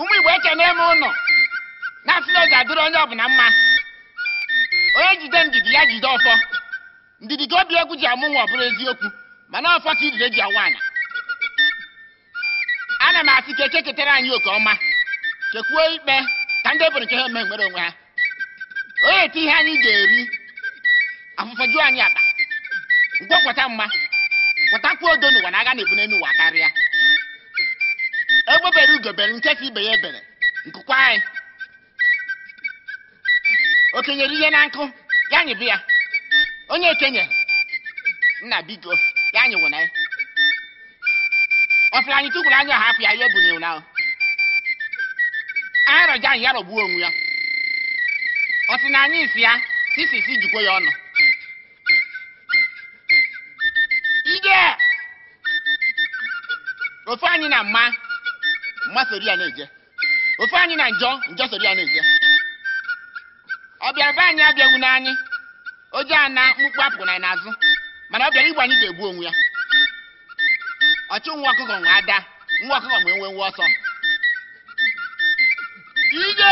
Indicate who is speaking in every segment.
Speaker 1: ụmụ igbo eche n'eme ụnọ na-asị na eji adịrị onye ọbụla mma onye jide ndidi ya jide ọfọ ndidi ka obi egwu ji amụ nwa ọ eziokwu mana ọfọ ka idide ji awa anya ana m asị ka eke ketara anyị oke ọma chekwuo ikpe ka ndị ebere nke ha eme nwere onwe ha onye eti ihe anyị ga-eri afụfọjuo anyị akpa nke kweta mma kwetakwuo odo n'ụwa na aga na-ebu n'elu karịa egbe bere ugo bere nkesa ibe ya ebere nkụkwa anyị Okenye ihe na nkụ ya anyị bịa. onye ekenye nna bigo ya nyịwụ na ya ọfịa anyị tụkwuru anya hapụ ya ihe ebunyewu na Arọ anyị ya rọgbuo onwe ya ọ sị na anyị si ya sisisi jikwa ya ọnụ ofe anyị na mma mma sori ya na-eje ofe anyị na njọ njọ sori a na-eje ọ bịara be anyị abịaghị n'anyị oje a na mkpukpu apụrụ na n'azụ mana ọ bịara anyị ga-egbu onwe ya ọchụ nwa ọkụkọ nwa ada nwa ọkụkọ nwe nwe nwe ọsọ ije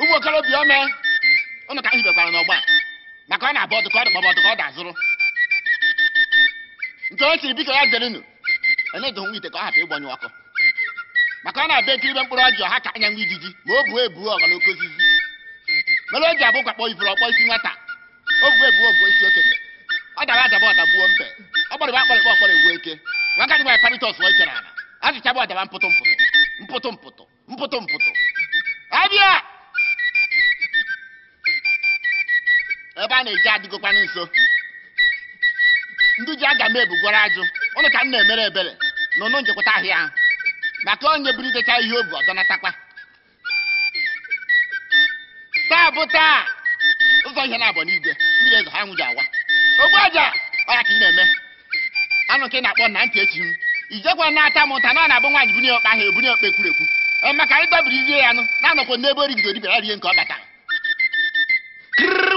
Speaker 1: ụmụ okorobịa ome ụnụ ka hibekwara n'ọgba maka ọ na-abụ ọdụ ka ọ dị maọbụ ọdụ ka ọ dị azụrụ nke o siri biko ya zerenu enyedohonwe ite ka ọ hapụ ịgbanyụ ọkụ maka ọ na-abịa ekiribe mkpụrụ ọjị ha ka anyanwụ ijiji ma o buo ebuo ọga na okozizi mere o ji abụkwa kpọọ ifuru ọkpọ isi nwata o buo ebuo bụ isi okenye ọ dara adaba ọdagbuo mbe ọ gbọrịba akpọrịkpọ ọkpọrọ ewu eke nwaka dịba paritọs wee chere ala azụchabụ ọdaba mpụtụ mpụtụ mpụtụ mpụtụ mpụtụ mpụtụ abịa ebe a na-eji adịgokwana nso ndị ji aga m ebugwara ajụ ụnụ ka m na-emere ebere na ụnụ ahịa ahụ maka onye buru idecha ihe obi ọdọnatakwa taa bụ taa ụzọ ihe na-abụ n'igwe mmiri eze ha nwụji awa ogbu aja ọya ka ị na-eme anụ ka ị na-akpọ na ntị echi m ijekwa na-ata m ụta na ọ na-abụ nwaanyị bunye okpe ahụ ebunye okpe ekwurekwu ee maka anyị dobiri rie ya nụ na-anọkwa n'ebe origide dibịara rie nke ọ bata.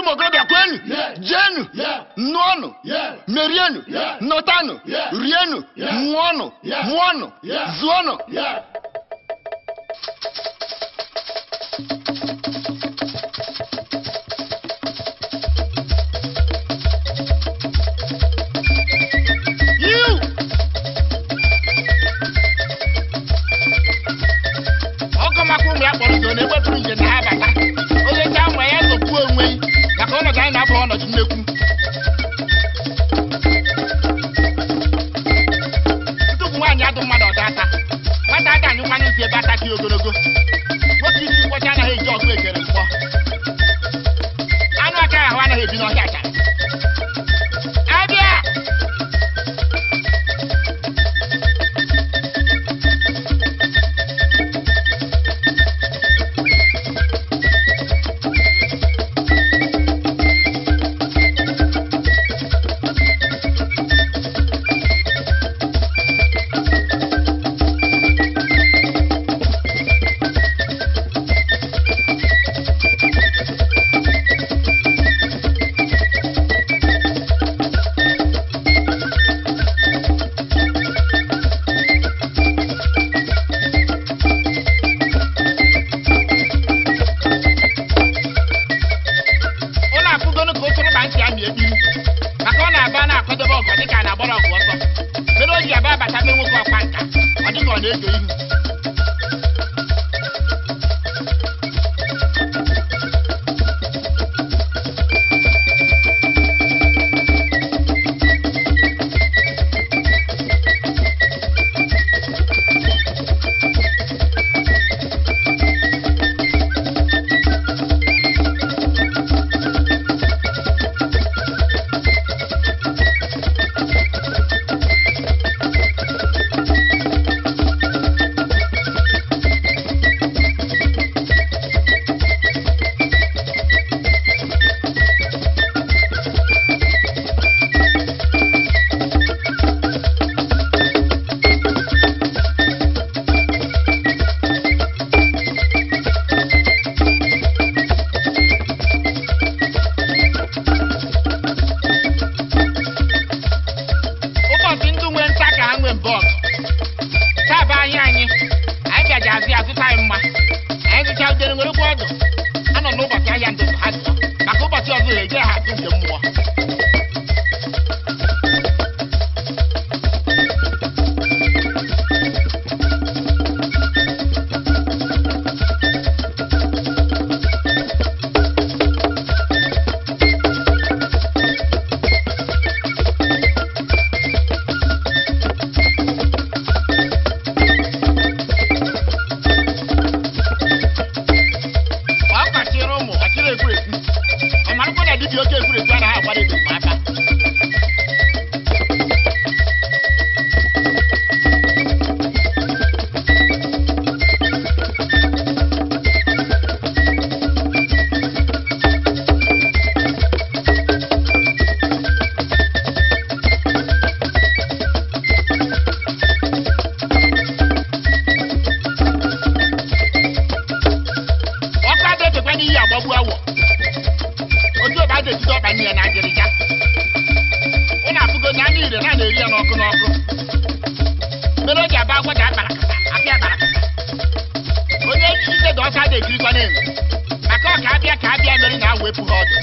Speaker 1: Mary Mogado ya yeah. jenu, yeah. merienu, notano, rienu, yeah. mwono, yeah. agbára àwárí tó máa bá. na-ejirikwa na-enwe maka ọ ka abịa ka abịa mere na awepụ ha ọdụ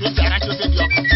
Speaker 1: Los you are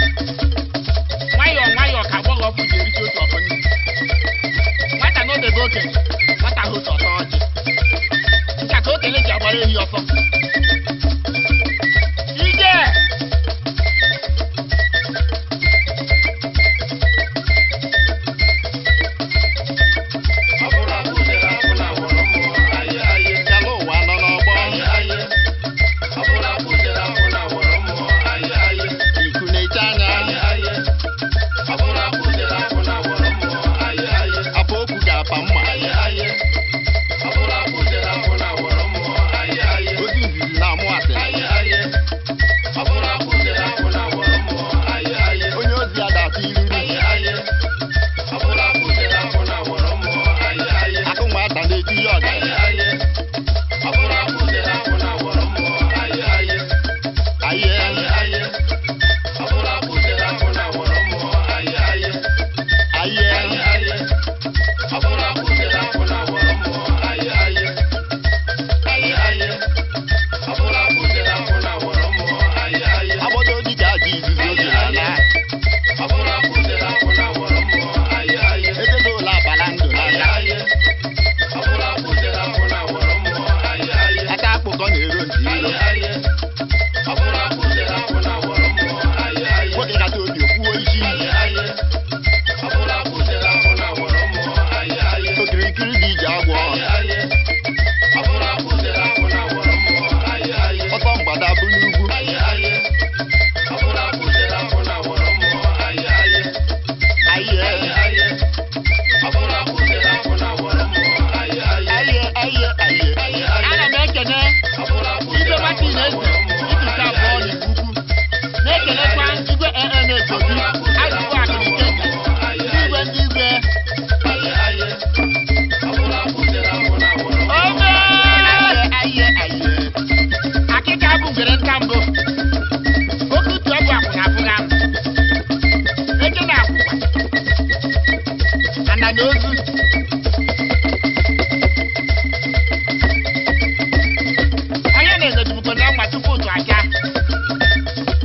Speaker 1: na-aga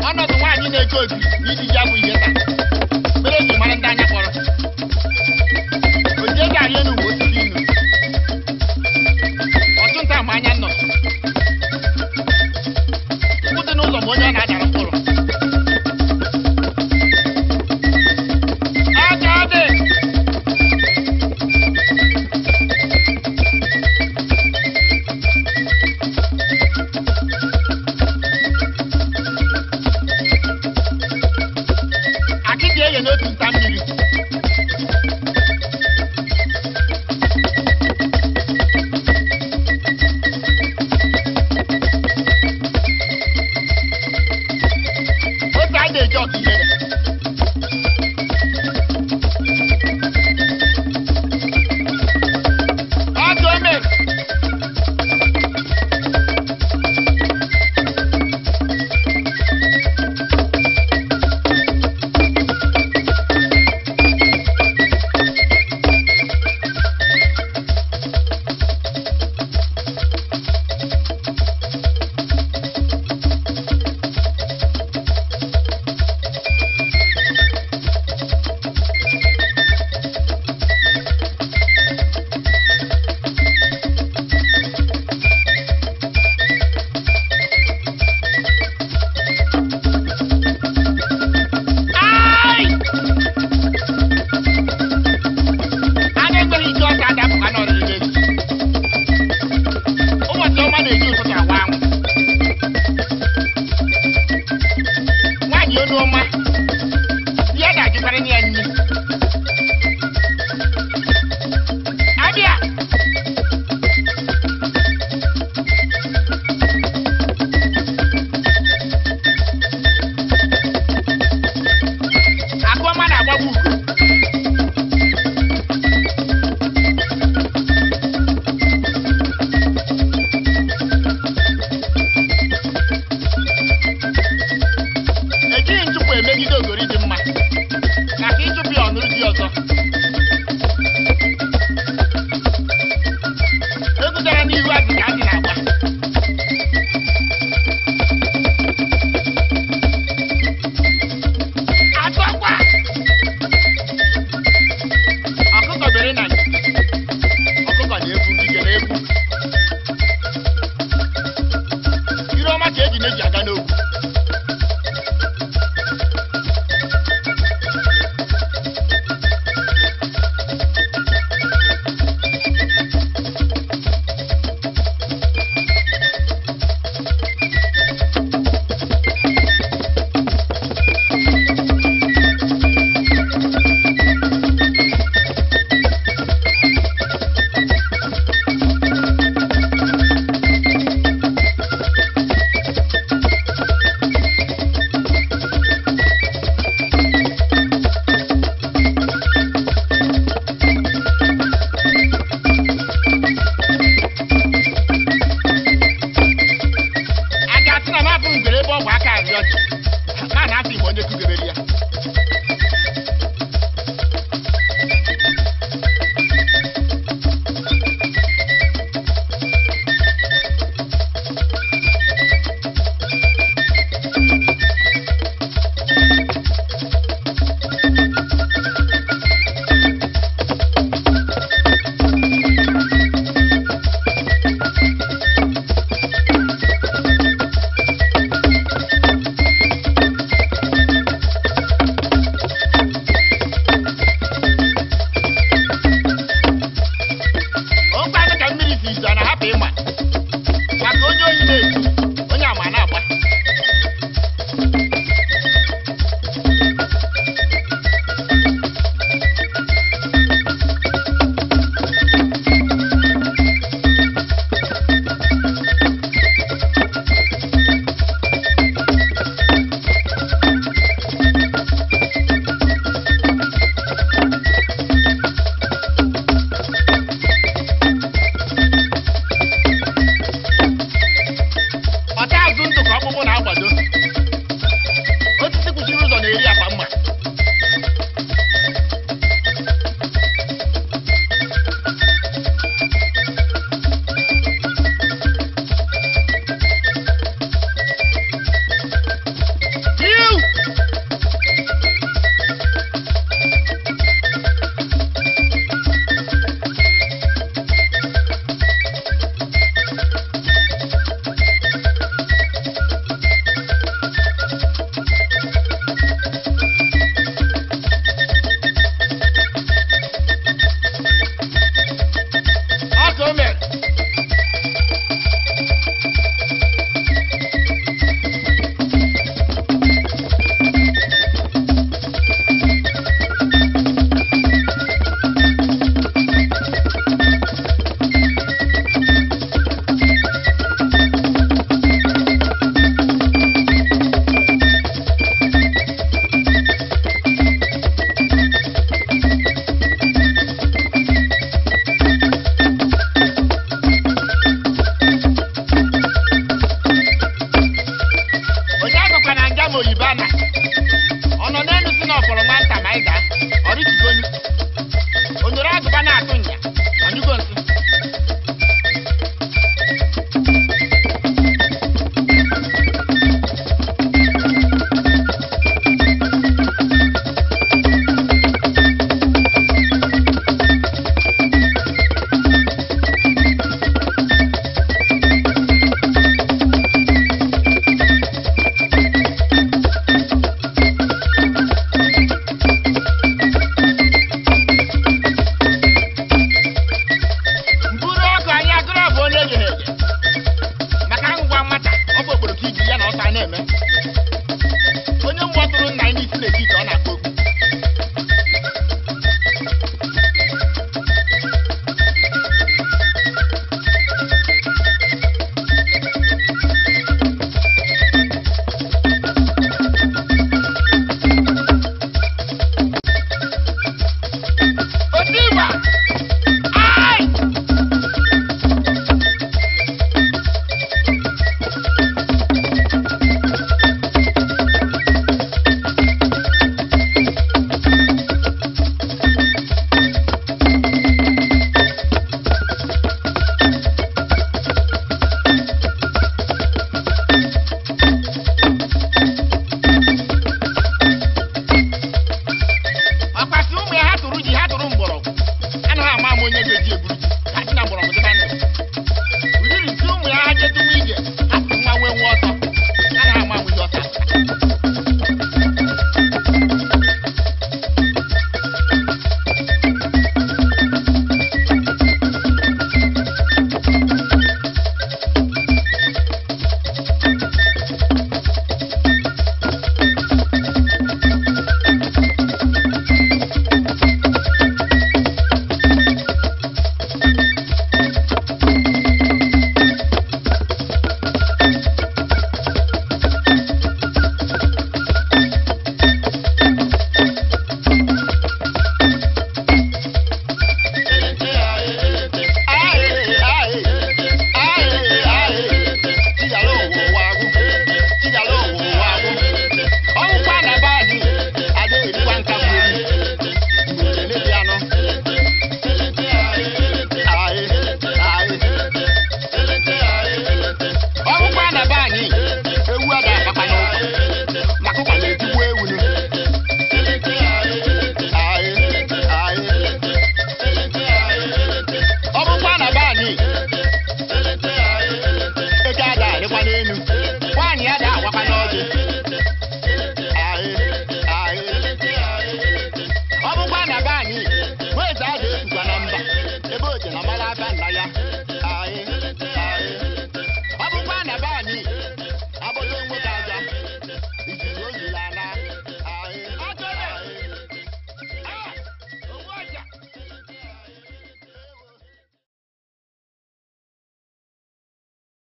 Speaker 1: ọnọdụ nwaanyị na-eje obi n'iji ya bụ ihe taa